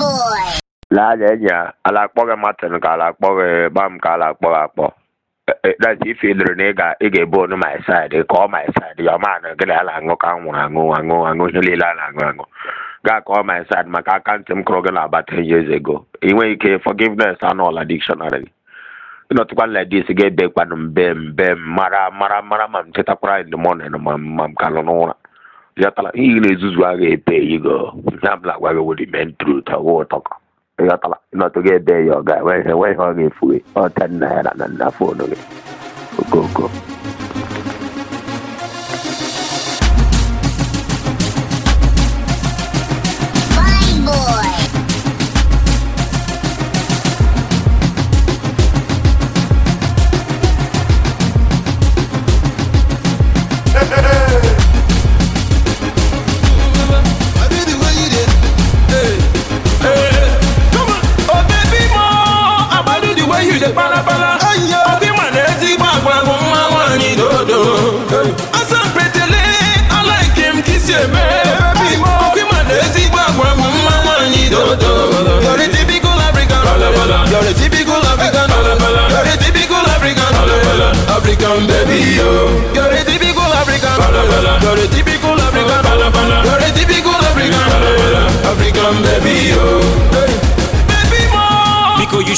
boy. laa ya ala akpọ gị martin ka ala akpọ gị bam ka ala akpọ gị akpọ eh, eh, that's if you dere na ị ga ị ga my side ka ọ my side ya ọma na gị na ya na-aṅụ ka nwụrụ aṅụ aṅụ aṅụ ihe niile a na-aṅụ aṅụ gaa ka ọ my side maka aka ntị m kụrụ gị na about ten years ago ị nweghị ike forgiveness anọla dictionary ịnọtụkwa na dis ga-ebe kwanụ mbe mbe mara mara mara ma m tetakwara in the morning ma mam ka nọ n'ụra ịghọtara ihe na-ezuzu agha ebe ego ihe ọbụla gwa gị wụrụ ime ụtọ ụwa ụtọkọ ịghọtara ịnọtụ gị ebe ya ọ ga-enweghị ọ ga-efu gị ọta nna ya na nna fonu gị okoko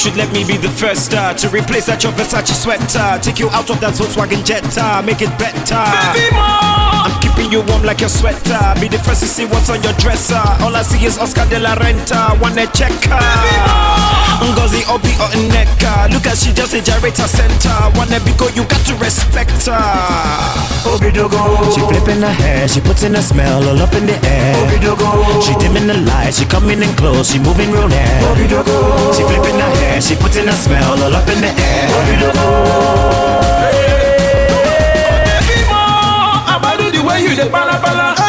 should let me be the first uh, to replace that your Versace sweater. Take you out of that Volkswagen Jetta, make it better. Baby, I'm keeping you warm like your sweater. Be the first to see what's on your dresser. All I see is Oscar de la Renta, wanna check her. Baby, Ngozi Obi or Look at she just a gyrator center Wanna be you got to respect her Obidogo She flipping her hair, she putting her smell all up in the air She dimming the light, she coming in close, she moving real near She flipping her hair, she putting her smell all up in the air Obidogo hey, hey, hey, hey, hey, hey, hey,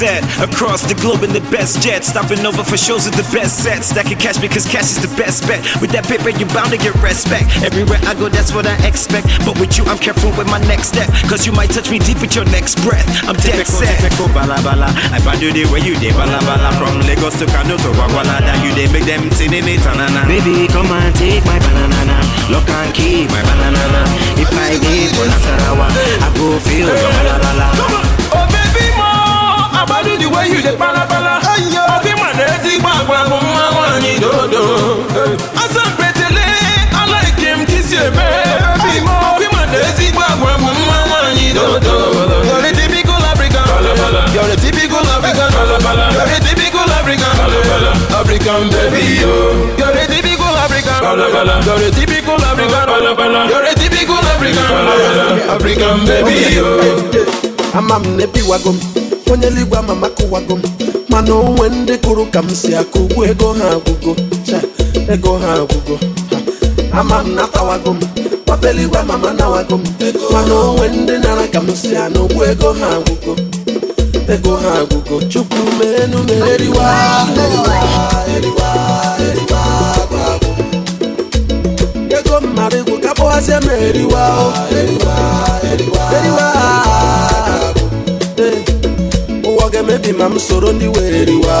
set. Across the globe in the best jet. Stopping over for shows with the best sets. That can me because cash is the best bet. With that paper, you're bound to get respect. Everywhere I go, that's what I expect. But with you, I'm careful with my next step. Cause you might touch me deep with your next breath. I'm dead typical, set. Typical, bala bala. I you the way you did, bala bala. From Lagos to Kano to you make them see tanana. Baby, come and take my banana. Lock and my banana. If I for Nasarawa, I go feel your Come on. agbado di way you dey balabala ọdị ma ezigbo agwa mma nwaanyị dodo asampetele alaike m ka isi eme ọdị ma na ezigbo agwa mma nwaanyị dodo You're a typical African. You're a typical African. You're a typical African. African yo. bi yo. Amam onye eluigwe ama maka ụwago m mana onwe ndị kụrụ ka m si akụ ugbu ego ha agwụgo ego ha agwụgo ama m natawago m papa eluigwe ama m anawago m mana onwe ndị nara ka m si anụ ugbu ego ha agwụgo ego ha agwụgo chukwu menu meriwa eriwa eriwa eriwa gwagwo ego mmadụ igwu ka kpọwazie m eriwa eriwa eriwa eriwa ga-emebi ma m soro ndị were eriwa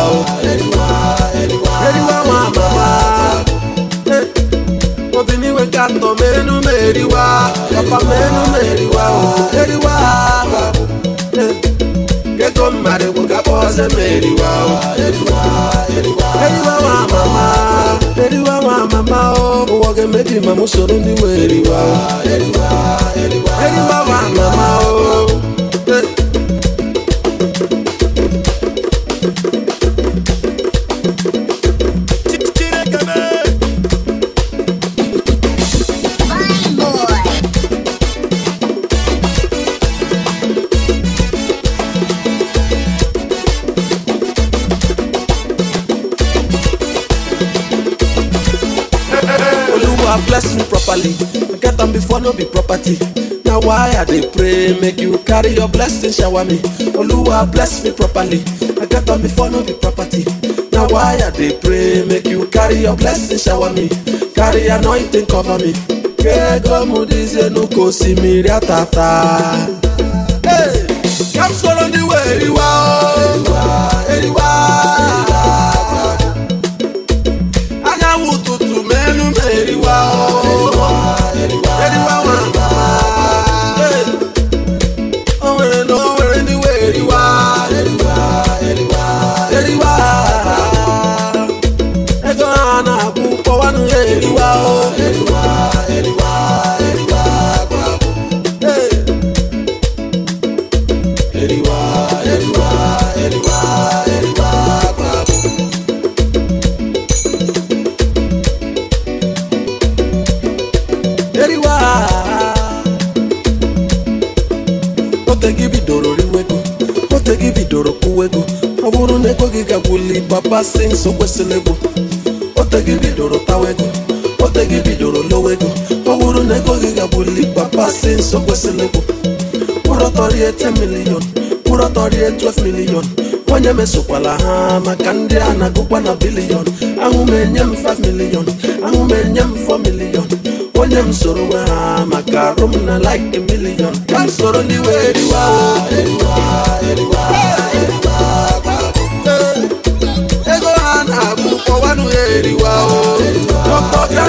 ma mama eh, obiniwe ka atọ menu ma eriwa papa menu ma eriwa eriwa ego mmadụ bụ gakpa ọzọ ma eriwa eriwa ma mama eriwa ma mama ụwa ga-emebi ma m soro ndị were eriwa eriwa ma mama o properly get am before no be property now why i dey pray make you carry your blessing shower me oluwa bless me properly i get am before no be property now why i dey pray make you carry your blessing shower me carry anointing cover me kegomudizenukosimiri atata hey, come swallow the way you are. ịgbasi nso kwesịrị ego ote bidoro tawa ego ote bidoro lowe ego ọ bụrụ na ego gị gagbuli gbapasi nso kwesịrị ego kpụrọtọrie 10 milion kpụrọtọrie 12 milion onye mesokwala ha maka ndị a na-agụkwa na bilion ahụ m enye m 5 milion ahụ m enye m 4 milion onye m soro nwe ha maka arụ na like a ka m soro n'iwe eriwa eriwa eriwa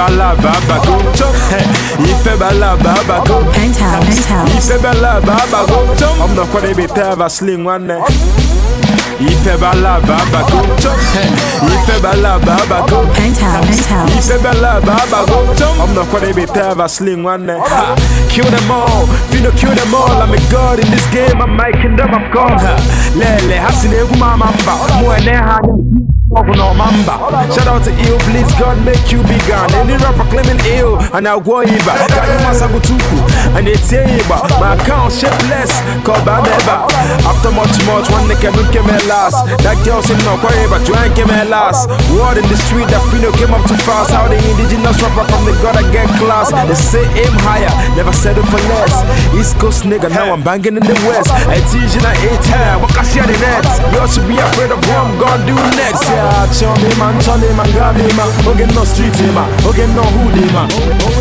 balaba bago chop Il fait balaba bago Il fait balaba bago chop I'm not gonna be sling one night Il bago chop Il fait bago chop I'm not gonna be sling one eh. Kill them all, kill them all I'm a god in this game, I'm making them, I'm gone Lele, hasine eh, mba Mwene No mamba. Shout out to you please God make you be gone. Any rapper claiming ill and I'll go Iba. Kayu Masagutuku and it's Iba. My account shapeless, call Babeba. After much, much, one nigga don't came at last. That girl said no quarry, but you ain't came at last. Word in the street that Fino came up too fast. How the indigenous rapper from the gotta get class. They say aim higher, never settle for less. East Coast nigga, now I'm banging in the West. I teach in a eight time, what can share the next? Y'all should be afraid of what I'm gonna do next. Yeah, chum him, man, chum him, man, grab him, man. Okay, no street him, eh, man. Okay, no hood him, eh, man.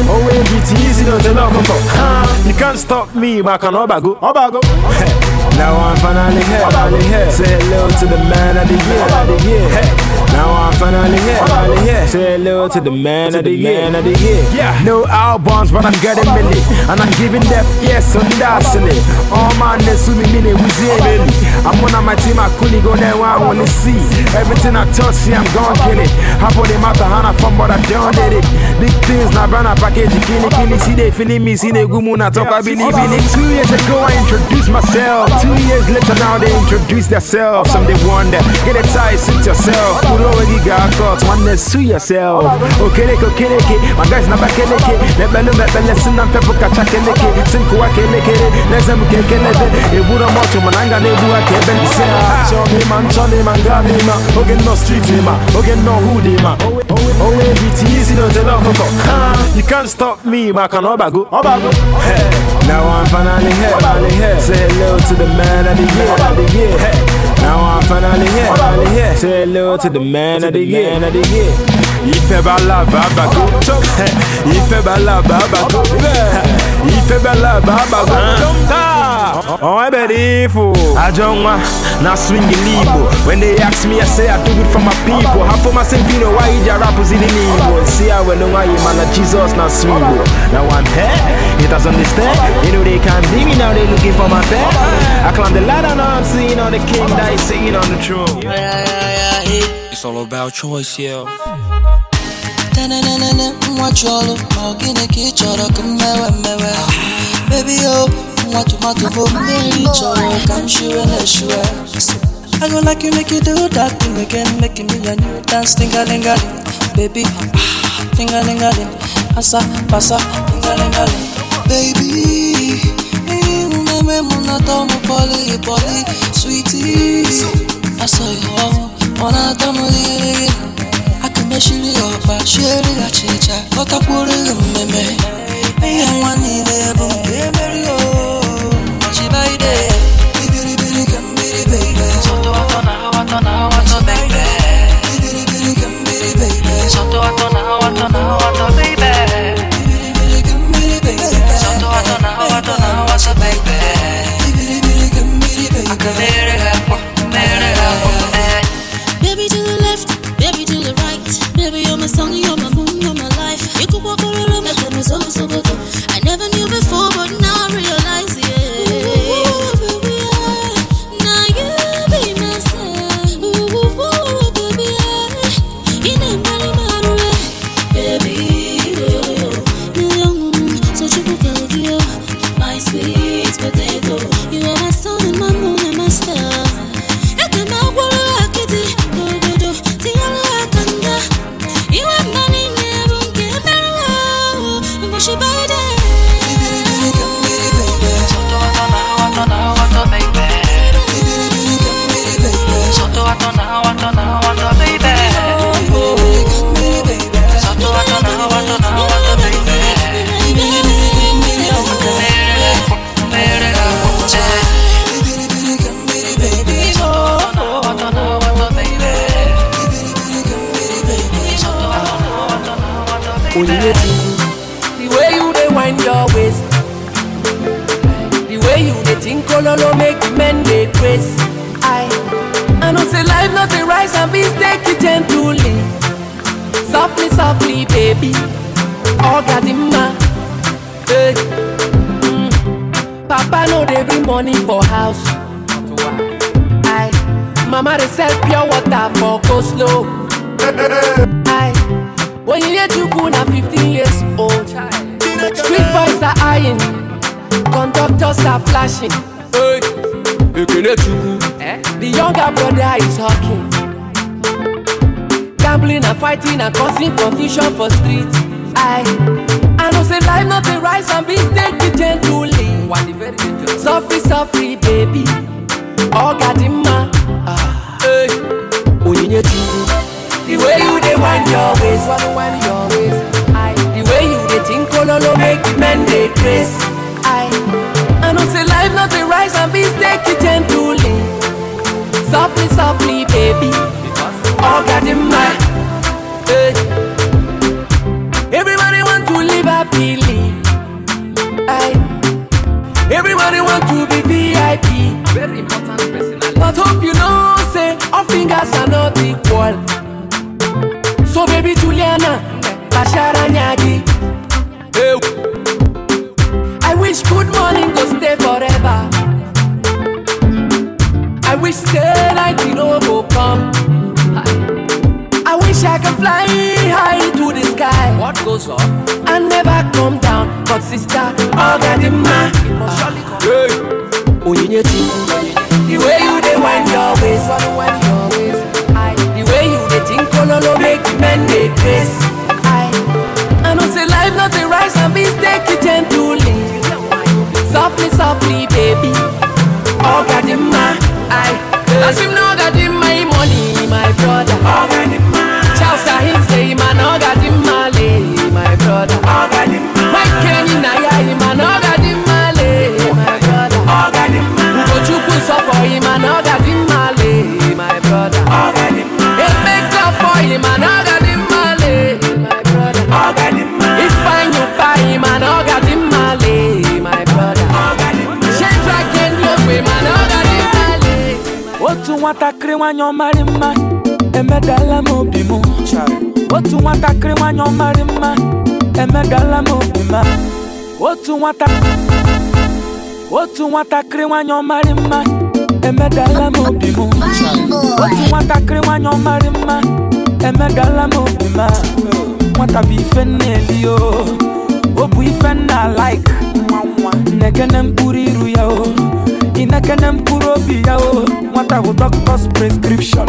Oh, wait, it's easy, don't tell no, come on. You can't stop me, man, can obago, obago. Now I'm finally here. Finally here. Say hello to the man of the year. Of the year. Hey. Now I'm finally Say hello to the man to of year. No albums, but I'm getting many and I'm giving them yes on that silly. All man, they sue me mini with really. I'm one of my team. I couldn't go there where I wanna see. Everything I touch, see I'm gone kill it. the from, but I Big things, now brand a package, kill it, kill it. See they feeling me, see they go moon, I I believe in it. Two years ago, myself. Two years later now they introduce themselves Some they wonder, get a tie, suit yourself Pull over you got caught, one sue yourself Okeleke, okeleke, my guys na bakeleke Lebelu, mebele, sina mpepo kachakeleke Sinku wa kelekere, leze mkekelebe Eburo mocho, mananga nebu wa kebe Ise ha, chome man, chone ah, man, gabi ma Oge no street eh, ma, oge no hoodie ma Owe oh, eh, biti, easy no telo koko You can't stop me, ma kan obago Obago, oh, oh. hey Now I'm finally here, finally here Say hello to the man of the year, of the year. Hey. Now I'm finally here, finally here. Say hello man to of year, year. Ife bala baba go Ife Ife bala baba Oh, Eberifu. Oh. Ajonwa, now swing the Igbo. When they ask me, I say I do it for my people. Half for my Sempino, why you rappers in Igbo? See, I will know Jesus, now swing. Now I'm here, it doesn't understand. You know they can't be me now, they looking for my bed. I climb the ladder, now I'm on the king that is sitting on the throne. it's all about choice, Nwa chọrọ, ọ gịnị ka ị chọrọ mewe mmewe? Baby, oh. nwa tomato bụ omume nri chọrọ ka m na I go like you make you do that thing again Make me a new dance tingalingaling Baby, Asa, ah, pasa, tingalingaling Baby, uneme munata umupoli, poli Sweetie, asa yo, munata mulili Akameshiri ọba, shiri ga chicha Ọtakwuru mmemme Ihe nwa niile Cause it a got Baby to the left, baby to the right Baby, you're my song, The way you dey wind your waist, the way you dey think ololo make men dey grace I, I know say life no dey rise and beans take it gently, softly, softly, baby. Ogadimma, hey. mm. Papa no dey bring money for house. I, Mama dey sell pure water for go slow. I. onyinye chukwu na 15 years old street boys are eyeing conductors are flashing hey, ekene chukwu eh? the younger brother is talking gambling and fighting and causing confusion for street i i know say life no dey rise and be steady gently sofri sofri baby ga dị mma ah. onyinye chukwu The way you dey wind your waist, wanna wind your waist. I, the way you dey think kololo make the men dey trace. I, I know say life not a rise and be take it gently, softly, softly, baby. Oh God in my, hey. Everybody want to live happily. I, everybody want to be VIP. Very important personality. But hope you know, say all fingers are not equal. baby Juliana Basharanyadi hey. I wish good morning go stay forever I wish say night in know go come I wish I can fly high to the sky What goes I never come down But sister, all got in mind Onyinyechi The way you dey wind your waist no no make men dey craze. I, I know say life no dey rise and mistake it gently. Softly, softly, baby. Oh gadima in my, I, as him no God in my money, my brother. Oh, nwatakịrị nwanyị ọmarị mma emedala m obi m otu nwatakịrị nwanyị ọmarị mma emedala m obi ma otu nwata otu nwatakịrị nwanyị ọmarị mma emedala m obi m otu nwatakịrị nwanyị ọmarị mma emedala m obi m nwata bụ ife nna-eli o obu ife nna like na-egene mkpụrụ iru ya o ị na mkpụrụ obi ya o nwata bụ doctor's prescription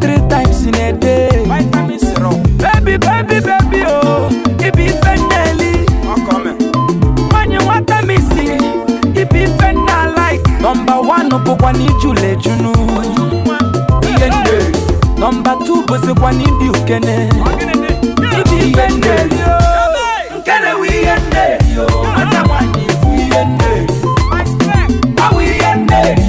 three times in a day vitamin syrup baby baby o oh. ibi ife nneli nwanyị nwata misi ibi ife nna like nọmba 1 bụkwa n'ijula ejunu ihe nne nọmba 2 bụzikwa ukene ibi o oh. nkene nwanyị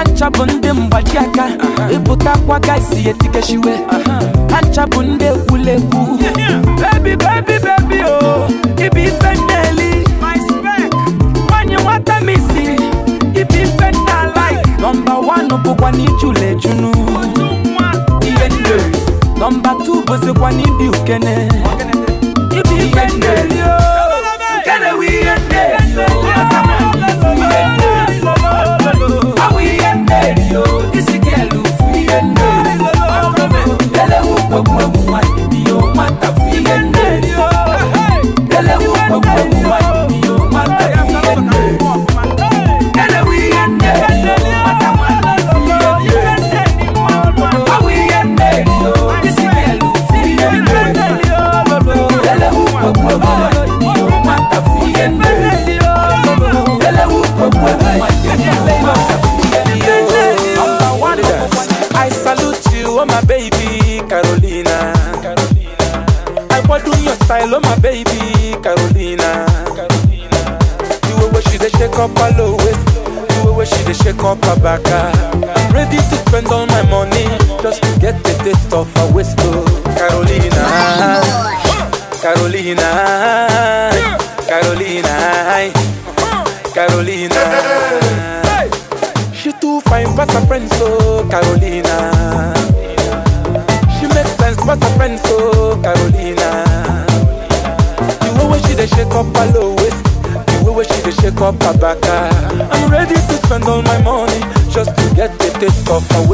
ancha bụ ndị mgbaji aka ịpụtakwa uh-huh. ka isi etikechiwe uh-huh. ancha bụ ndị egwulegwu bebi bebi bebi o oh, ibi ife nneli nwanyị nwata misi ibi ife nnala nọmba one bụkwa n'ijule junu. ihe nne nọmba two bụzikwa n'ibi ukene ibi ife nneli I'm ready to spend all my money just to get the taste of a waste. off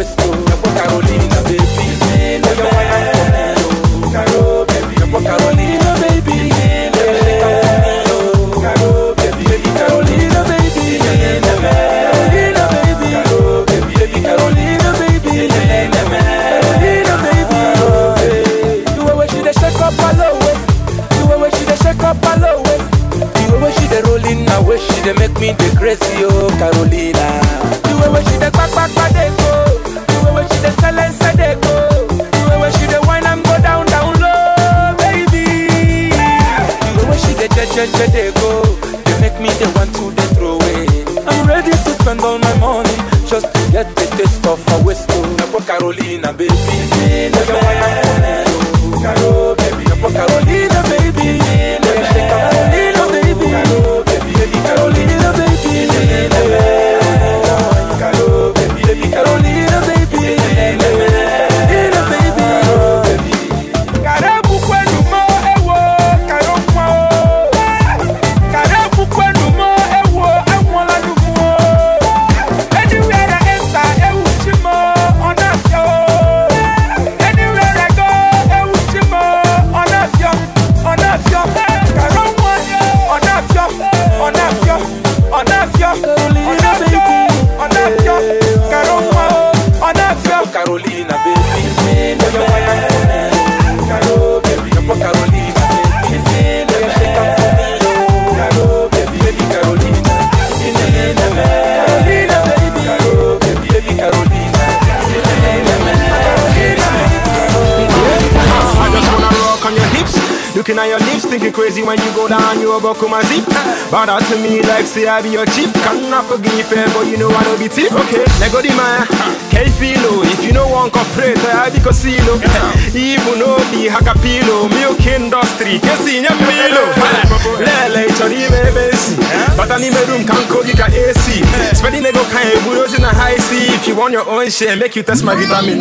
crazy when you go down, you go come and zip. But that to me, like say I be your chief. Cannot forgive fair but you know I don't be tip. Okay, let go the man. Hey, filo, if you know one corporate, I be casino. Even no be hakapilo, milk industry, kesi nyapilo. Lele, chori me besi. But I need room, can't go get AC. Spending ego, can't bulldoze in a high C. If you want your own share, make you test my vitamin.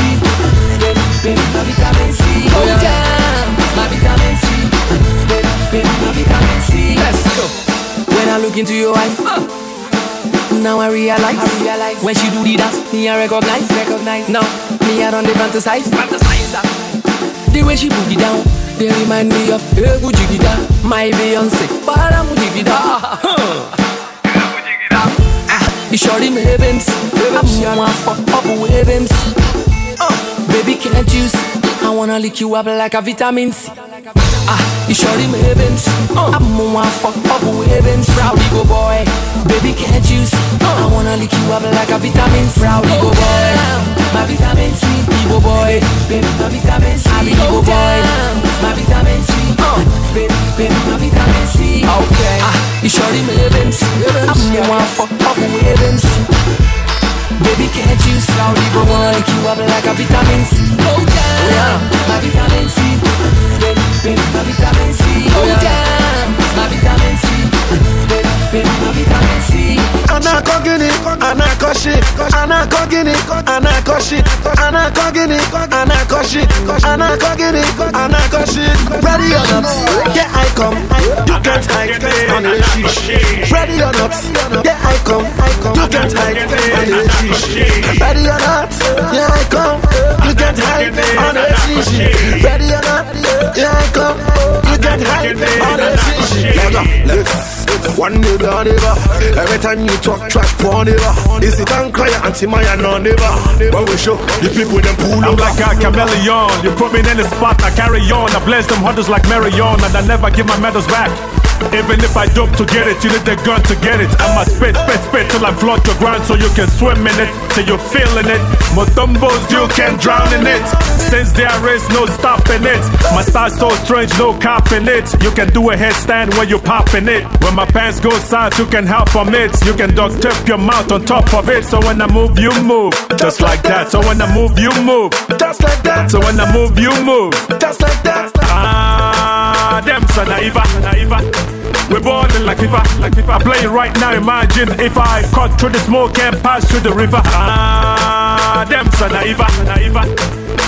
baby, ma vitamin C. Oh yeah, yeah. my vitamin C. Baby, baby, my vitamin C. Let's go. When I look into your eyes. Now I realize, I realize when she do the dance, me I recognize, recognize. Now me I don't dey fantasize, fantasize The way she boogie down, they remind me of Egu Jigida, my Beyonce, Paramu Jigida. Ah, you sure them heavens, I'm one fuck up with heavens. Baby, can't you see? I wanna lick you up like a vitamin C. Ah, you sure them heavens. Uh, I'm more fuck up heavens. boy, baby can't you see? Uh, I wanna lick you up like a vitamin C. boy, my vitamin C. boy, baby my vitamin C. I go boy, my vitamin C. Uh, ah, you sure shit, I not go guinea, I not go shit, I not go guinea, I not I I you can't hide on the shit. Ready or not, yeah I you can't hide on the shit. Ready or not, yeah I you can't hide on the shit. Ready or not, you can't hide on the shit. one day down Every time you talk trash, poor Is it and cry anti Maya no neighbor? When we show the people them pull I'm over. like a chameleon. You put me in the spot, I carry on. I bless them hunters like Marion, and I never give my medals back. Even if I dope to get it, you need the gun to get it. I'ma spit, spit, spit till I flood your ground so you can swim in it, till you're feeling it. more Motombos, you can drown in it. Since there is no stopping it, my style so strange, no copping it. You can do a headstand when you popping it. When my pants go south you can help from it. You can duct tape your mouth on top of it. So when I move, you move, just like that. So when I move, you move, just like that. So when I move, you move, just like that. Ah. them so naiva, naiva, We're balling like if I, like if I play right now. Imagine if I cut through the smoke and pass through the river. Ah, them so naiva, naive.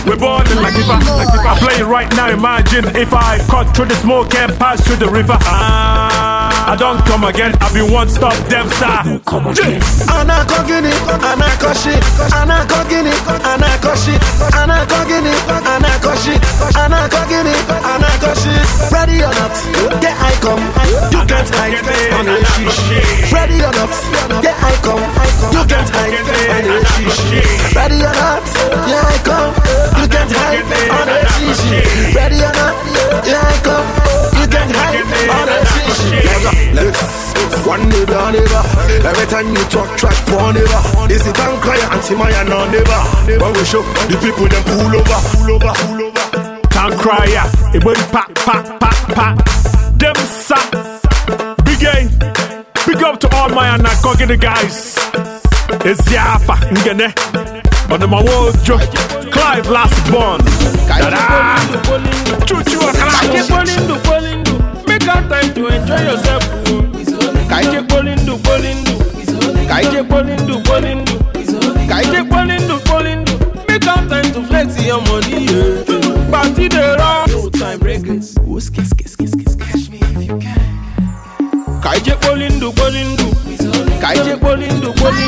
We're in like if I, like if I play right now. Imagine if I cut through the smoke and pass through the river. Ah. I don't come again, I be one stop them sir. Anako gini, anako shit, anako gini, anako shit, anako gini, anako shit, anako gini, anako shit. Ready or not, get I come, you can't hide on a shit. Ready or not, get I come, you can't hide on a shit. Ready or not, yeah I come, you can't hide on a shit. Ready or not, yeah I come, you can't hide on a shit. Let's one neighbor down neighbor. Every time you talk track neighbor. Is it bank cry anti my no neighbor? but we show the people them pull over, pull over, pull over. Can't cry ya. It went pack, pack, pack, pack. Them sack. Big game. Big up to all my and the guys. It's Yafa Ngene. On my world, Clive last born. Ta-da! Choo-choo, got time to enjoy yourself oh. ka ije kpoli ndụ polindu. ndụ ka ije kpoli ndụ kpoli ka ije kpoli ndụ kpoli make out time to flex your money yeah. party dey rock no time breakers kiss kiss kiss kiss catch me if you can ka ije kpoli ndụ polindu. ndụ ka ije kpoli ndụ kpoli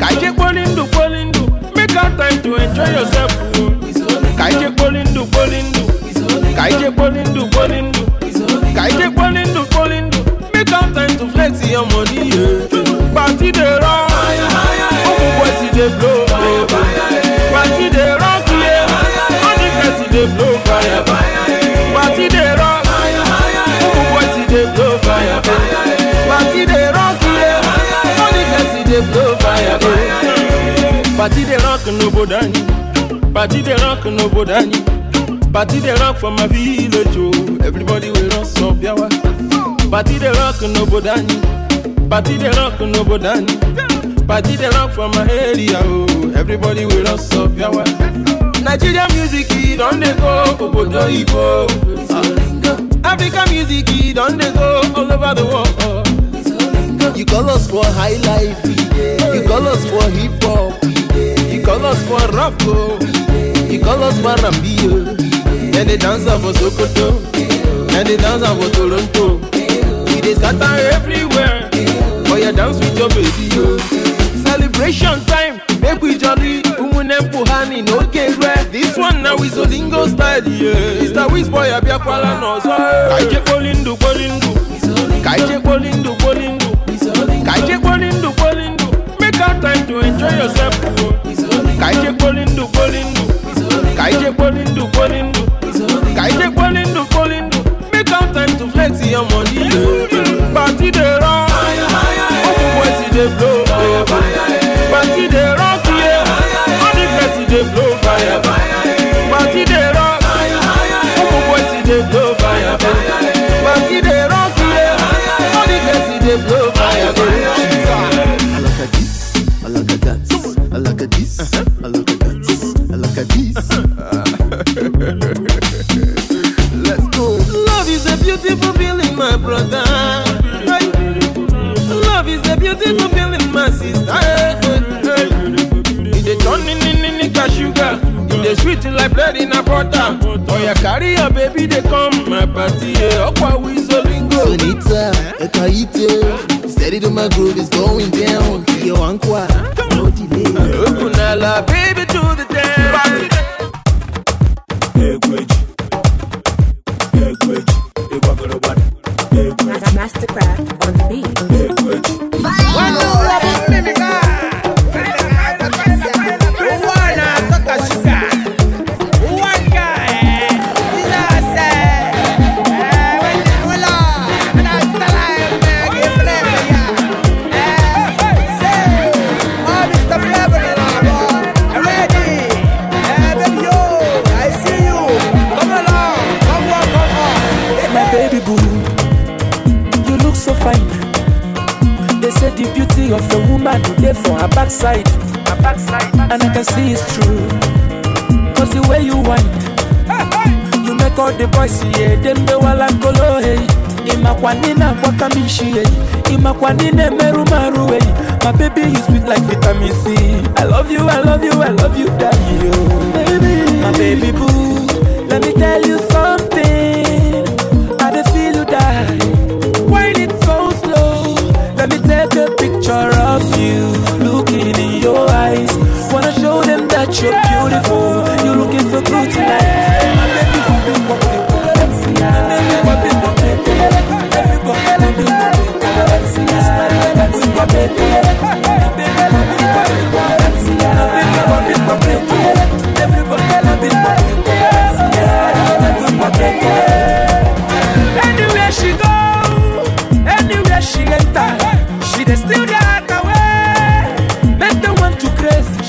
ka ije kpoli ndụ kpoli make out time to enjoy yourself oh. ka ije kpoli ndụ polindu. ndụ ka ije kpoli ndụ kpoli to plenty your money. Eh. Party the rock, open boys see they blow. Eh. Party yeah, the see they blow fire. Eh. Party the rock, open see they blow fire. Party the rock, yeah, the see they blow fire. Party for my village, oh. Everybody will run some Party the rock n'obodo anyi Party the rock n'obodo anyi Party the rock for my area oh everybody will us up yawa Nigeria music don dey go obodo Igbo ah. African music don dey go all over the world You call us for high life You call us for hip hop You call us for rock oh You call us for Rambio And oh, they dance for Sokoto And they dance for Toronto They scatter everywhere. For your dance with your baby, Celebration time, make we jolly. Umunem puhani no kere. This one now is Olingo style, yeah. mr the whiz boy abia kwala no eh. Kaije bolindu bolindu. Kaije kolindu bolindu. Kaije kolindu kolindu Make out time to enjoy yourself. Oh. Kaije bolindu bolindu. Kaije kolindu bolindu. Kaije kolindu kolindu Make out time to flex your money. Jide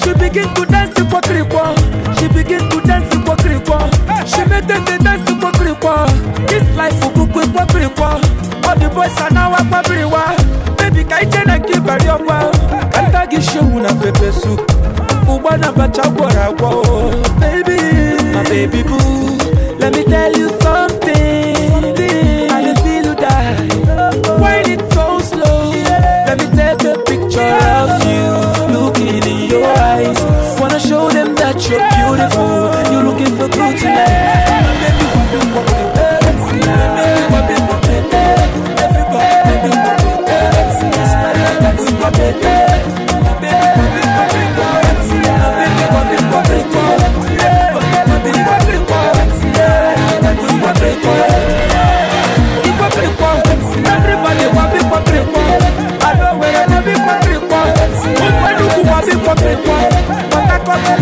She begin to dance kwa krikwa. She begin to dance kwa krikwa. She made the dance This life ukukwe kwa krikwa. All the boys are now Baby ka ije na kibari ọkwa. Kanta gị shewu na pepe soup. Ugba na bacha gwọrọ oh, Baby,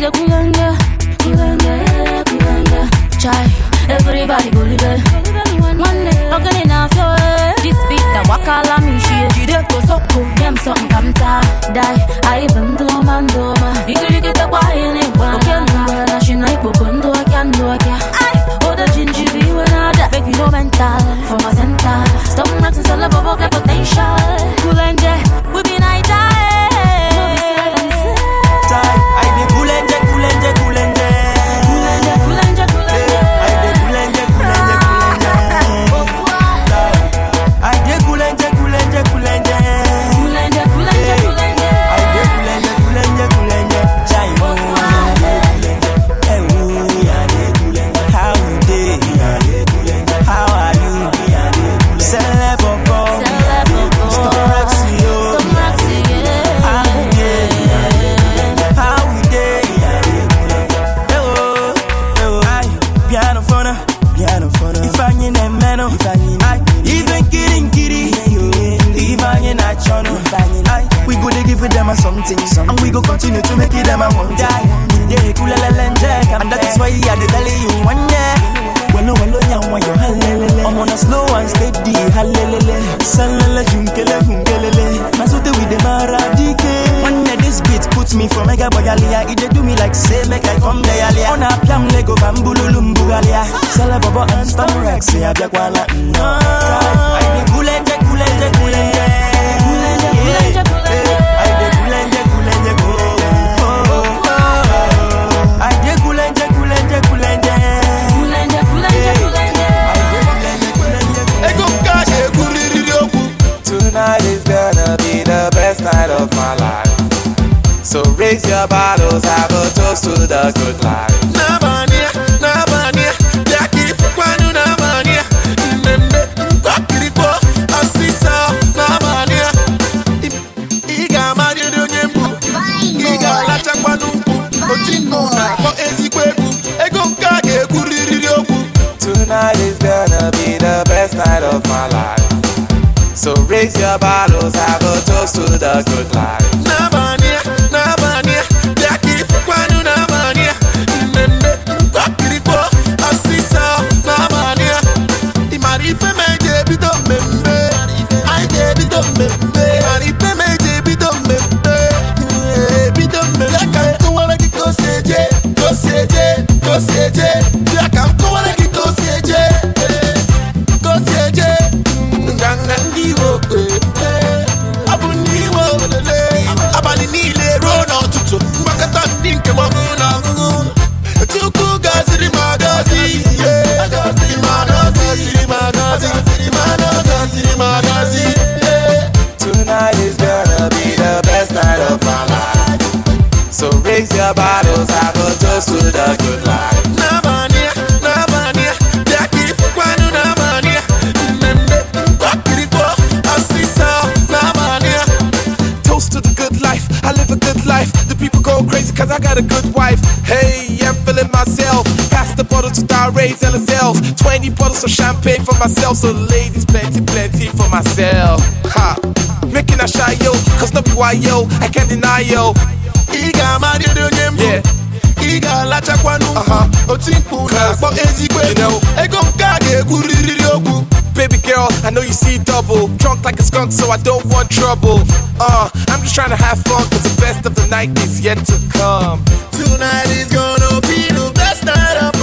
da kunganga kunganga a chai everybody go live one na i'm ee. Eh. this beat wakala jide ko something come ta dai ai bando mando ma igiri ke ta kwa ene na na shina ipo kondo kan do kya ai oda jinji bi wana make you no mental the battles, have a toast to the good life. Nabania, Nabania, Jackie Fukwanu Nabania, Nende, Kakiripo, Asisa, na Iga Marido Nyembu, Iga Lachakwanumbu, Otingo, ezigbo Ezikwebu, Ego Kage Kuririobu. Tonight is gonna be the best night of my life. So raise your bottles, have a toast to the good life. Some champagne for myself, so ladies, plenty, plenty for myself. Ha! Making a shy yo, cause no why yo, I can't deny yo. Iga onye Yeah. Ị ga-alachakwanụ uh-huh. oti mkpu na-akpọ ezigbo ego ego nke a ga-egwurịrịrị Baby girl, I know you see double. Drunk like a skunk, so I don't want trouble. Uh, I'm just trying to have fun, cause the best of the night is yet to come. Tonight is gonna be the best night of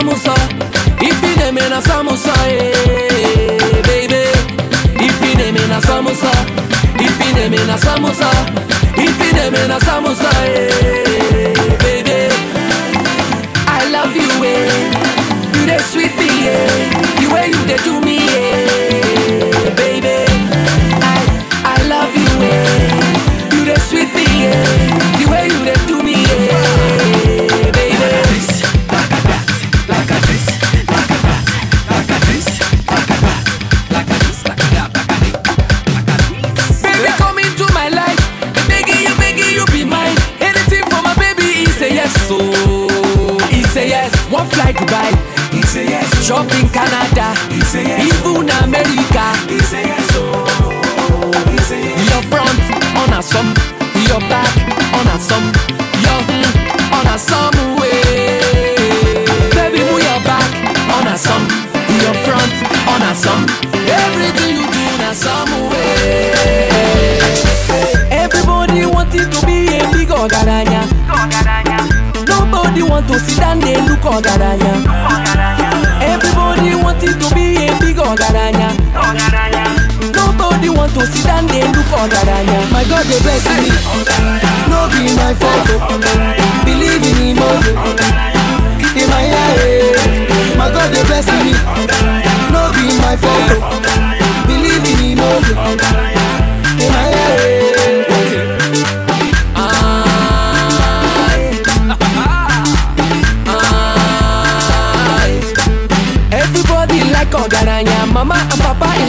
samosa If you dey na samosa eh, baby If you dey na samosa If you na samosa If you na samosa eh.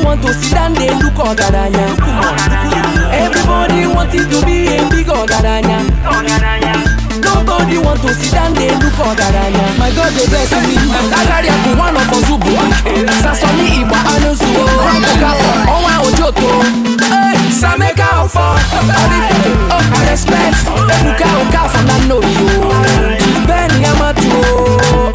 you want to sit down there look ọgaranya everybody wanted to be a big ọgaranya nobody want to sit down there look ọgaranya my god dey bless me agaria bụ nwa nọ fọzụ bụ sasọmi igba anụzuo oh. ọkafọ ọnwa oh. ojoto eh, sameka ọfọ oh, ọrịfọ respect ebuka okafor na nna oyibo bend your matu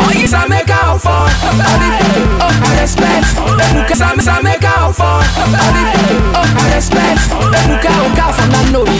Oh, you sa make out for I respect Ebuka sa make out for I respect o ka fa na no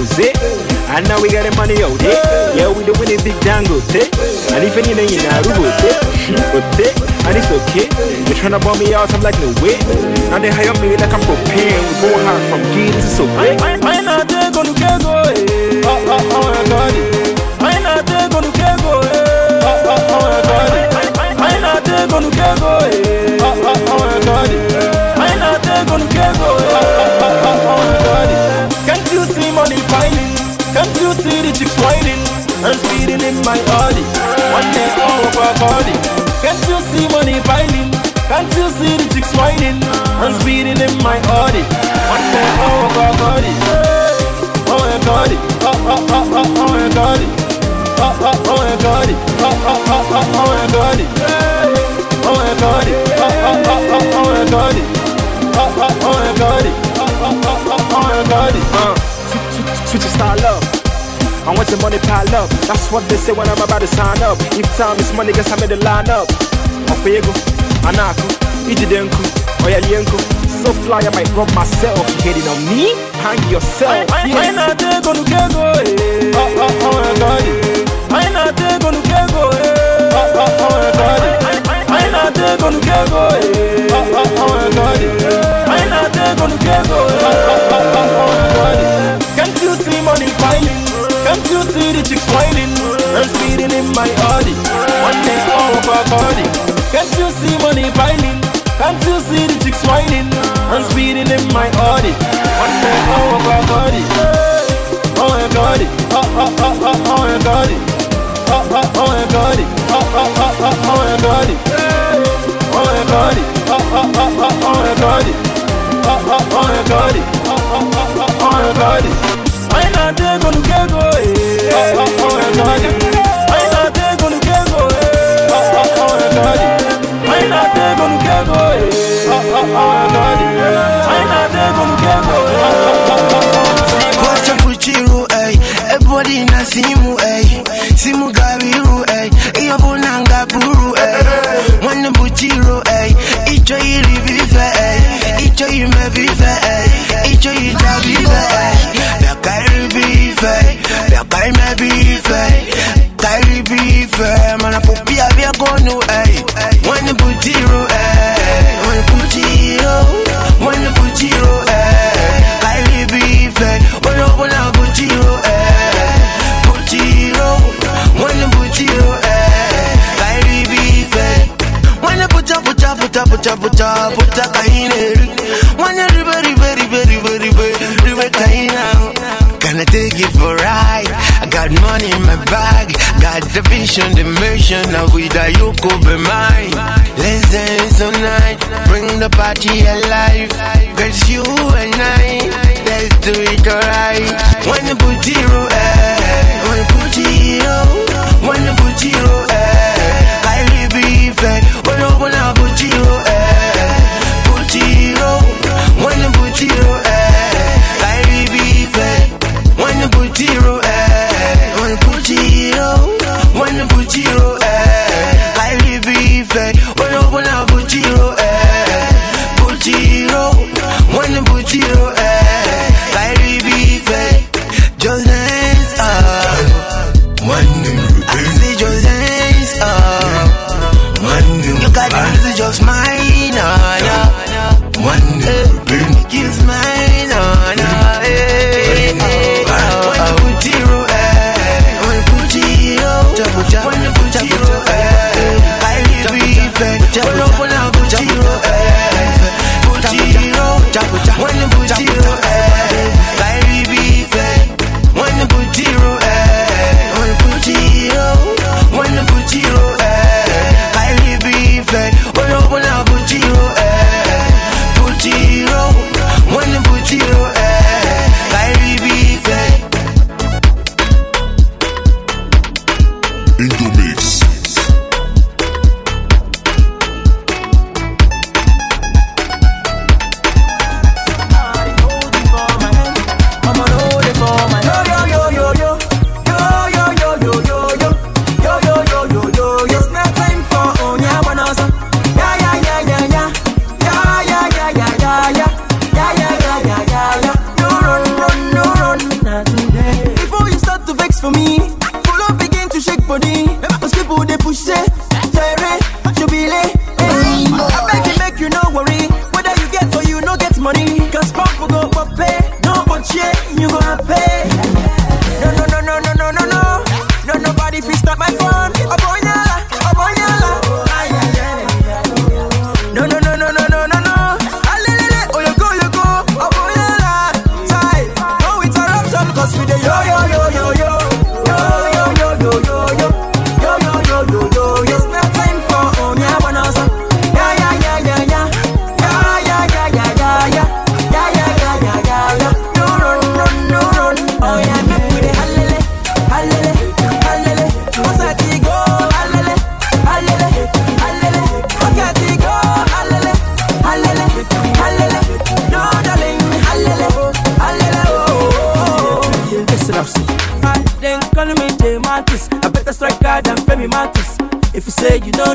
Jose. And now we got the money out there. Eh? Yeah, we the winning big dangote. Eh? And even in the Rubote. Eh? eh? And it's okay. They're trying to bomb me out, I'm like, no way. Now they hire me like I'm propane. We go hard from Guinea to so big. not eh? Oh, oh, oh, oh One day all of our body. Can't you see money piling? Can't you see the chicks whining? I'm speeding in my Audi. One all of body. Oh my God, oh oh oh oh oh my God, oh oh oh my God, oh oh oh oh oh my God, oh my God, oh oh oh oh oh my God, oh oh oh my God, oh oh oh oh my God. Switch, switch, switch, style up. I want your money pile up. That's what they say when I'm about to sign up. If time is money, guess I'm in the lineup. Okwego, Anako, Ijidenku, Oyalienko. So fly, I might rob myself. hating on me? Hang yourself. I ain't not gonna get get go. I go. I eh. oh, oh, oh, go. Eh. Can't you you see the chicks whining and speeding in my Audi? One day over body. Can't you see money piling? Can't you see the chicks whining and speeding in my Audi? One day over body. Oh my God! Oh oh oh oh oh my God! Oh oh oh my God! Oh oh oh oh oh my God! Oh my God! Oh oh oh oh oh my God! Oh oh oh my God! Oh oh oh oh oh my God! na-ata ego nke ego anyị na-ata ego nke ego nke nke simu ei simu gara iru ei ihe bụ na nga buru ei nwanne bụchi Dai me bife, dai li bife Ma mana popia via con noi, ehi When put zero, ehi When put zero, when put zero, ehi Dai li bife, when open put zero, ehi Put zero, when put zero, ehi Dai When When ribe Got money in my bag, got the vision, the mission. Now with that you could be mine. Let's dance tonight, bring the party alive. Cause you and I, let's do it alright. When the booty roll say you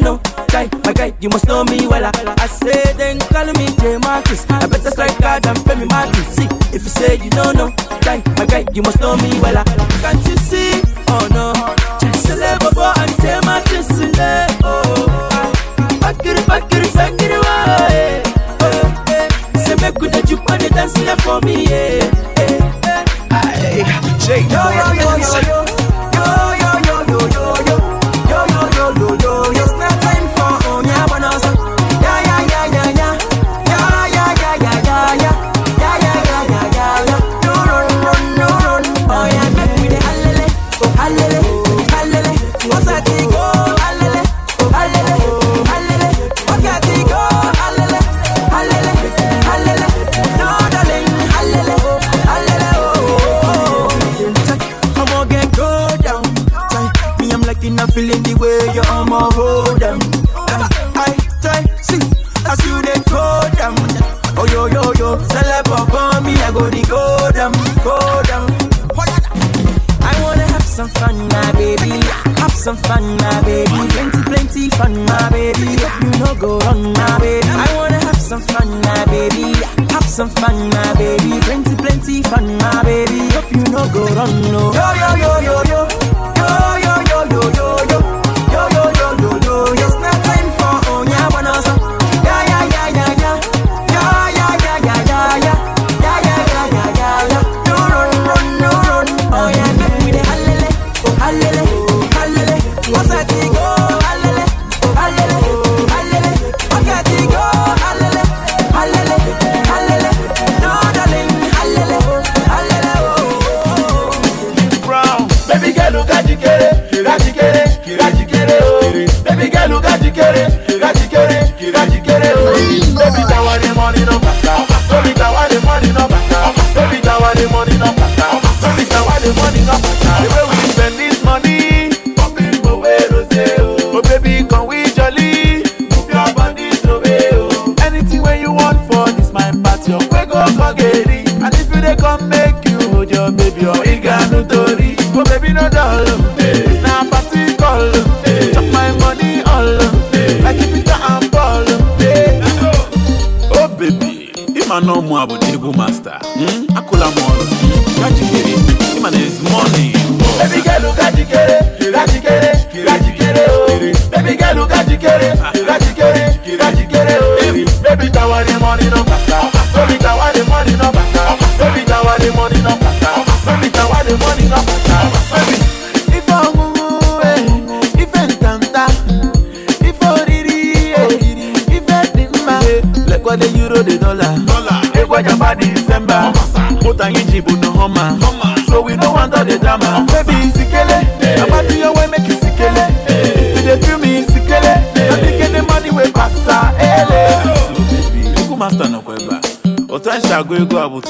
ọ bụ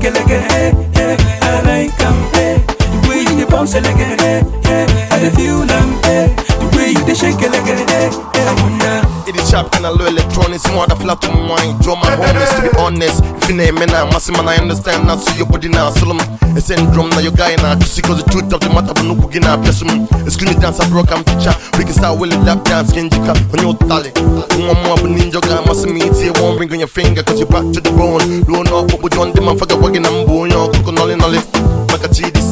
Kelege, eh, eh, I like him, eh, the way you bounce, Sharp and a low electronics, more the flat on wine. Draw my homies to be honest. If you name me now, massive man, I understand. Now see your body now, Solom. A syndrome now, your na now. Just because the truth of the matter, but no cooking now, bless me. It's dance, I broke, I'm teacher. We can start with a dance, can you on your tally? One more, but ninja guy, must your finger, cause you're back to the bone. Blown up, but we don't demand, working, I'm you're cooking, all in, all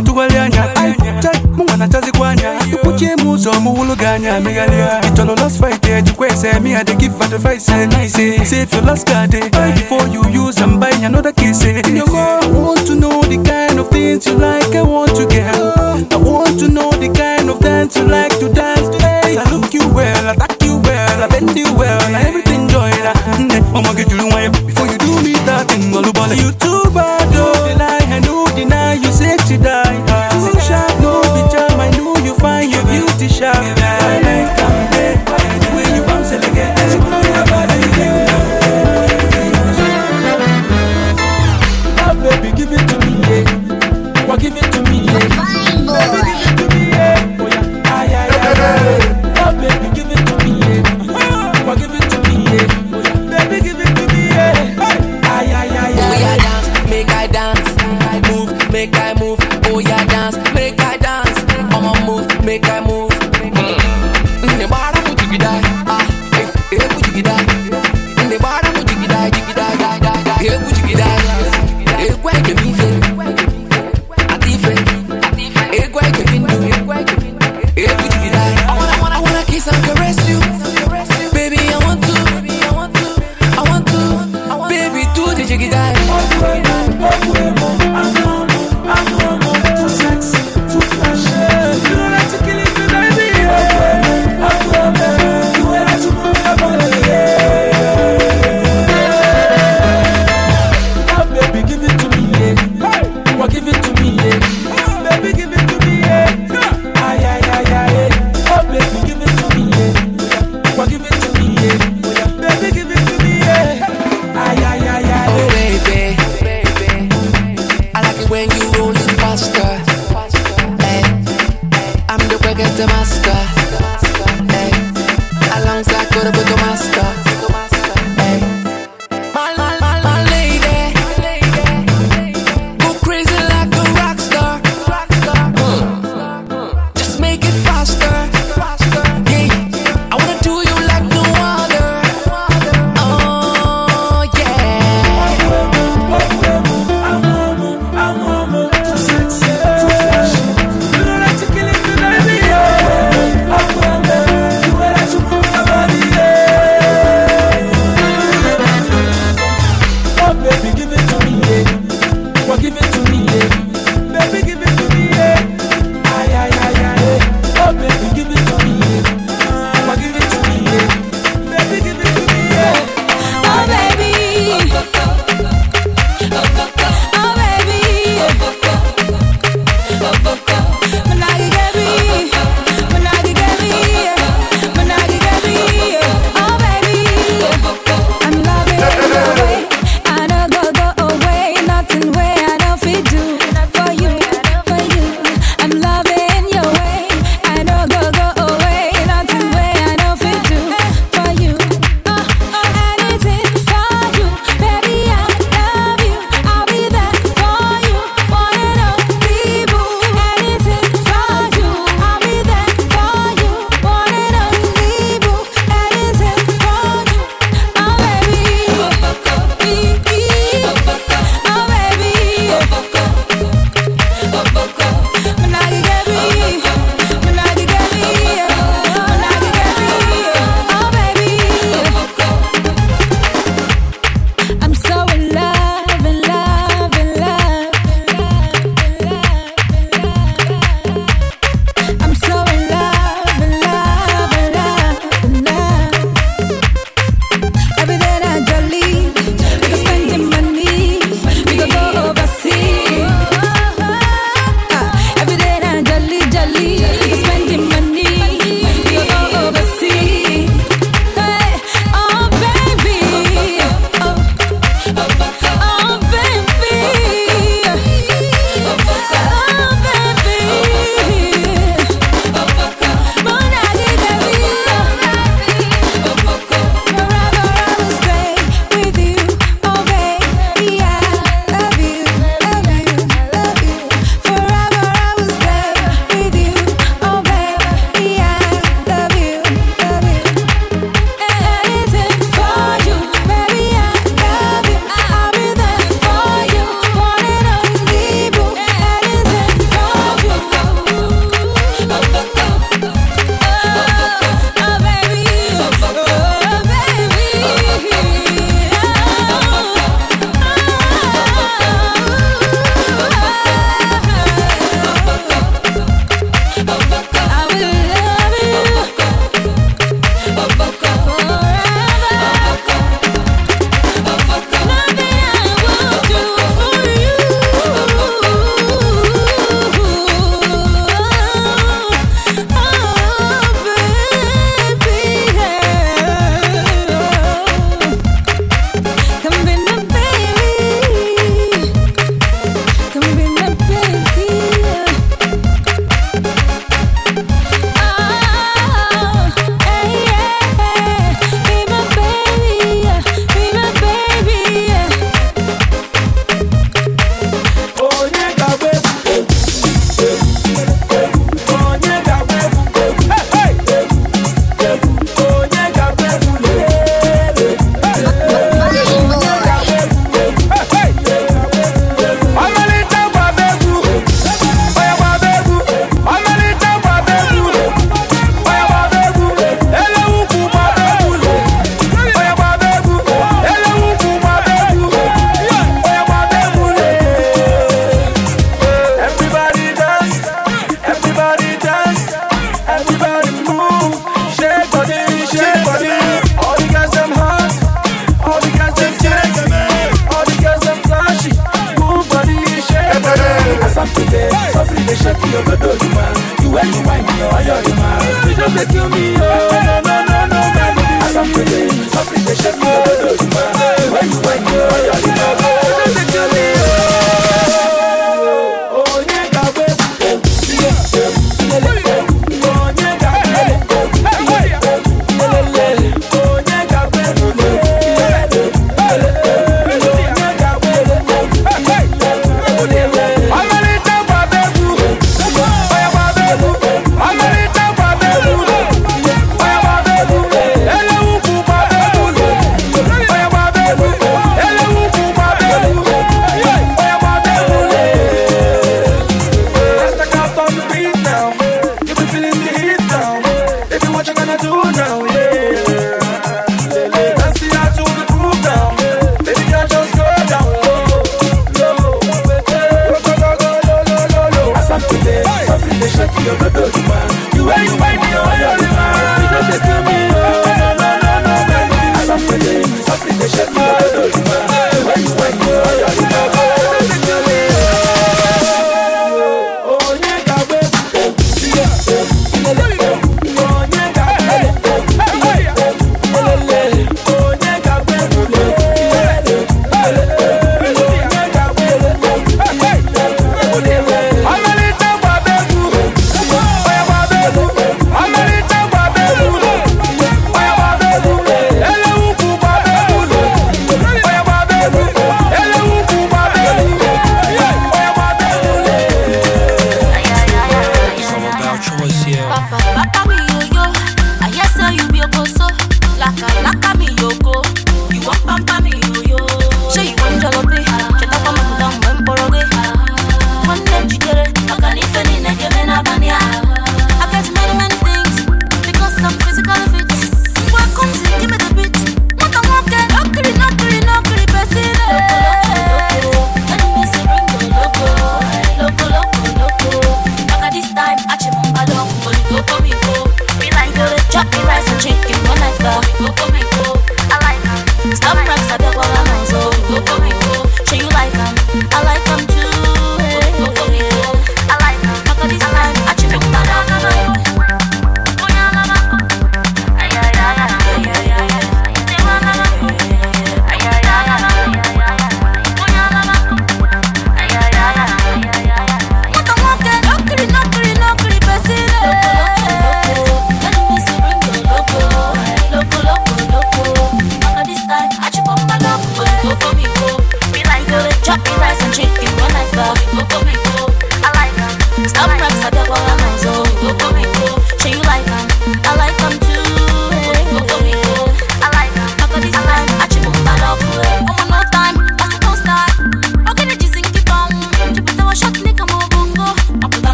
na-atụgharị anya mụnwa na-achazikwa anya kwuchie m ụzọ m wụlụ gị anya megharịa ịchọrọ last Friday ejikwa me I dey give advice nice save your last card eh, buy before you use am buy another kiss in your car want to know the kind of things you like I want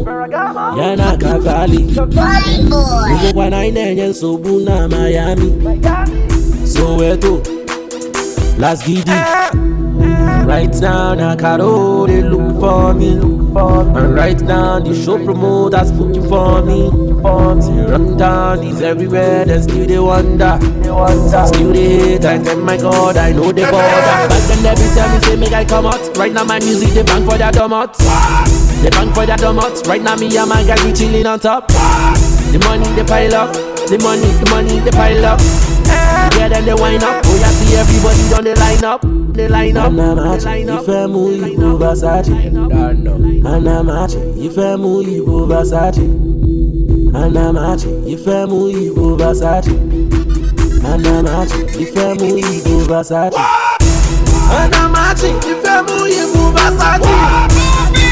Adamu ya na Kavali bụbụkwa na anyị na-enye nsogbu na Miami Soweto Las Gidi Right now na Karo dey look for me and right now the show promoters looking for me Till run down is everywhere dem still dey wonder Still dey hate I tell my God I know dey bother Back then dem be tell me say make I come out Right now my music dey bang for their dumb out They bang for that donuts. Right now, me and my guys, we chilling on top. The money, they pile up. The money, the money, they pile up. Yeah, then they wind up. Oh, yeah, see everybody done they line up. They line up. Mana machi, ife mu ibu basachi. Mana machi, ife mu ibu basachi. Mana machi, ife mu ibu basachi. Mana machi, ife mu ibu basachi. Mana machi, ife mu ibu basachi.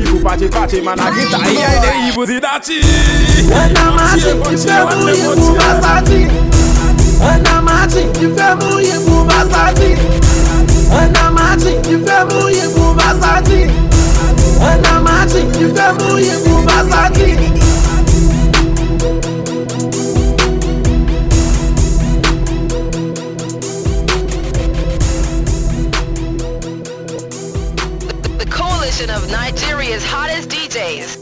evil Pache pache gita E ay de evil zi dati Ena mati ki selection of Nigeria's hottest DJs.